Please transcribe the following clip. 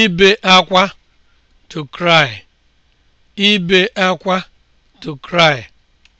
ibe akwa to cry ibe akwa to cry